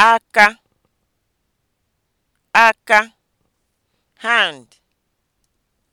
aka aka hand